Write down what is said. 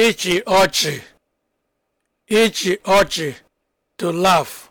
ịchị ọchị ịchị ọchị to laugh